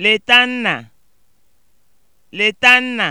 Leta nna! Leta nna!